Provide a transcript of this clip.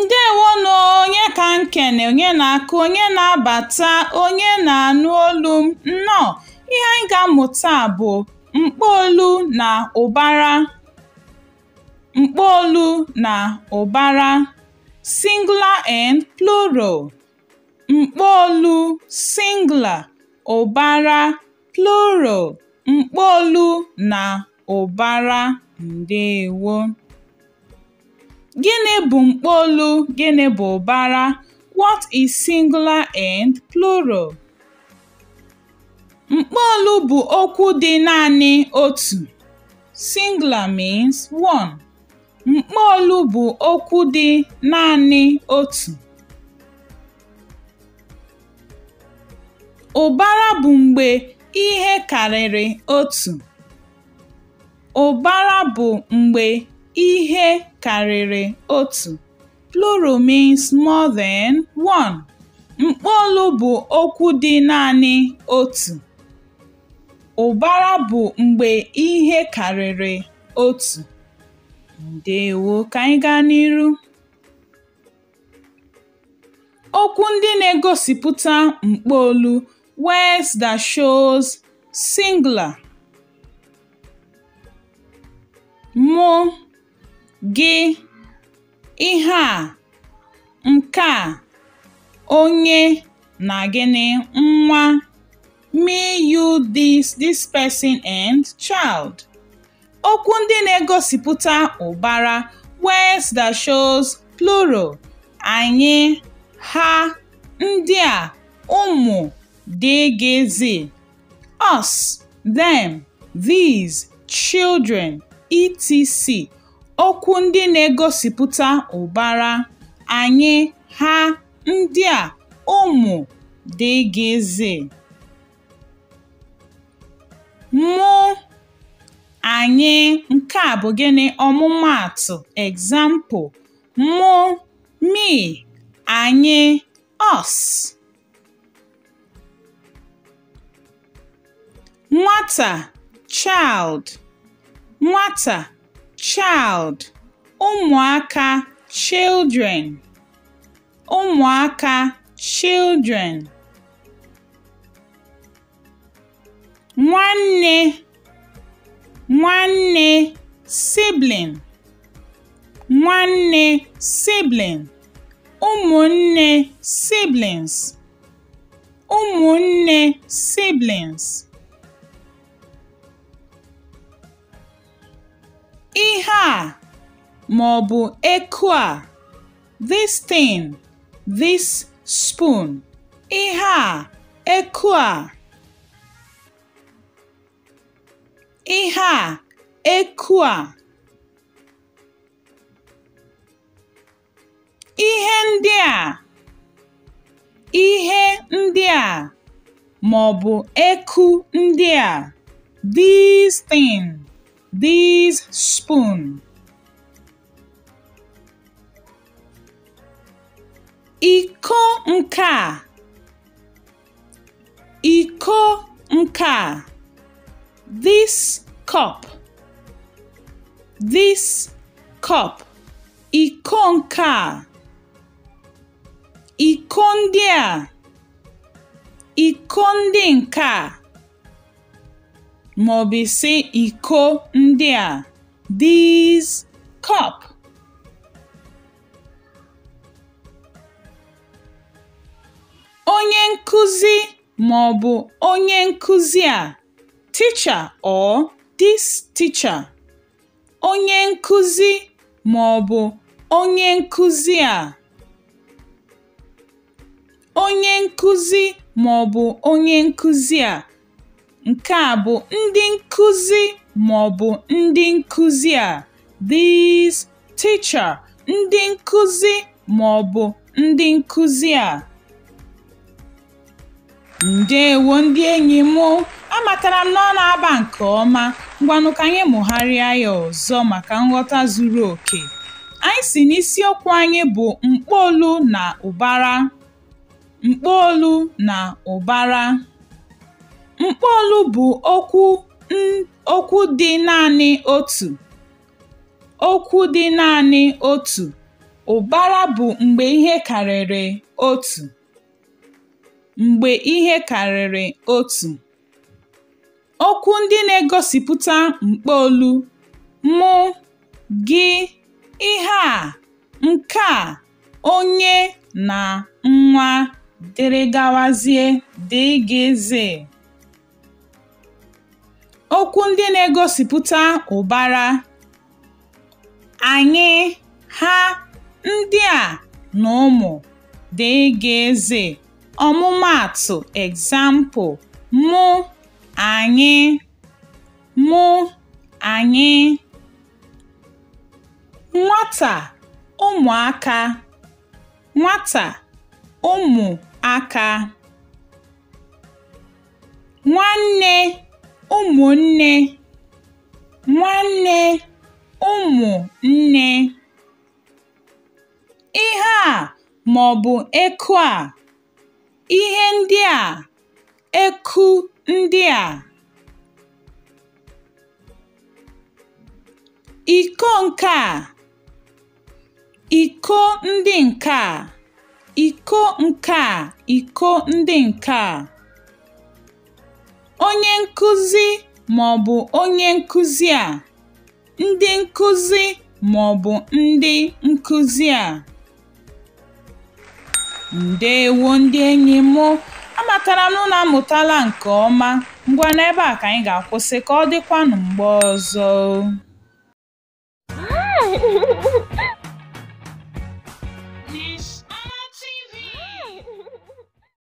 ndewonụ onye ka nkene onye na-akụ onye na-abata onye na-anụ olu m nnọọ ihe anyị ga-amụta bụ mkpoolu na ụbara mkpoolu na ụbara singular and plural Mkpọolu singla ụbara plural mkpọolu na ụbara. Ndewo. Gịnị bụ mkpọolu, gịnị bụ ụbara? What is singular and plural? Mkpọolu bụ okwu dị naanị otu (singular means one). Mkpọolu bụ okwu dị naanị otu. Ụbara bụ mgbe ihe karịrị otu. Ụbara bụ mgbe ihe karịrị otu (plural means more than one), mkpọolu bụ okwu dị naanị otu. Ụbara bụ mgbe ihe karịrị otu. Ndewo, ka anyị gaa n'iru? Okwu ndị na-egosipụta mkpọolu words that shows singular. Mụ, gị, ihe a, nke a, onye na gịnị, nwa, me, you, this, this person and child. Okwu ndị na-egosipụta ụbara words that shows plural anyị, ha, ndị a, ụmụ dgz. Us, them, these, children, etc. Okwu ndị na-egosipụta ụbara: anyị, ha, ndị a, ụmụ, dgz. Mụ, anyị nke a bụ gịnị ọmụmaatụ example: mụ, me, anyị, us. nwata (child), nwata (child), ụmụaka (children), ụmụaka (children), nwanne (nwanne) sibling, nwanne sibling, ụmụnne (siblings), ụmụnne (siblings) Ihe a, ma ọ bụ eku a, this thing, this spoon, ihe a, eku a, ihe a, eku a. Ihe ndị a, ihe ndị a, ma ọ bụ eku ndị a, these things. these spoon iko Ikonka. iko this cup this cup iko nke iko iko ndị maọbụ isi iko ndị a “These cup.” Onye nkuzi maọbụ onye nkuzi a (teacher or this teacher). Onye nkuzi maọbụ onye nkuzi a (onye nkuzi maọbụ onye nkuzi a). Nke a bụ ndị nkụzi maọbụ ndị nkuzi a (these) teacher, ndị nkụzi maọbụ ndị nkuzi a. Ndeewo ndị enyi Mụ Amatara m na ọ na-aba nke ọma. Ngwanụ ka anyị mụgharịa ya ọzọ maka nghọta zuru oke. Anyị si na isiokwu anyị bụ mkpoolu na ụbara. Mkpoolu na ụbara. Mkpọọlụ bụ okwu dị naanị otu (okwu dị naanị otu), ụbara bụ mgbe ihe karịrị otu (mgbe ihe karịrị otu). Okwu ndị na-egosipụta mkpọọlụ mụ gị, ihe a, nke a, onye, na nwa, dgz) Okwu ndị na-egosipụta ụbara anyị, ha, ndị a na ụmụ dgz. Ọmụmaatụ example, mụ, anyị, mụ, anyị. Nwata, ụmụaka, nwata, ụmụaka. Nwanne ụmụnne nwanne ụmụnne. Ihe a maọbụ eku a, ihe ndị a, eku ndị a. Iko nke a, iko ndị nke a, iko nke a, iko ndị nke a. Onye nkuzi maọbụ onye nkuzi a, ndị nkuzi maọbụ ndị nkuzi a. Ndeewo ndị enyi m! Amatara m amụtala nke ọma. ngwa n'ebe a ka anyị ga-akwụsị ka ọ dịkwanụ mgbe ọzọ.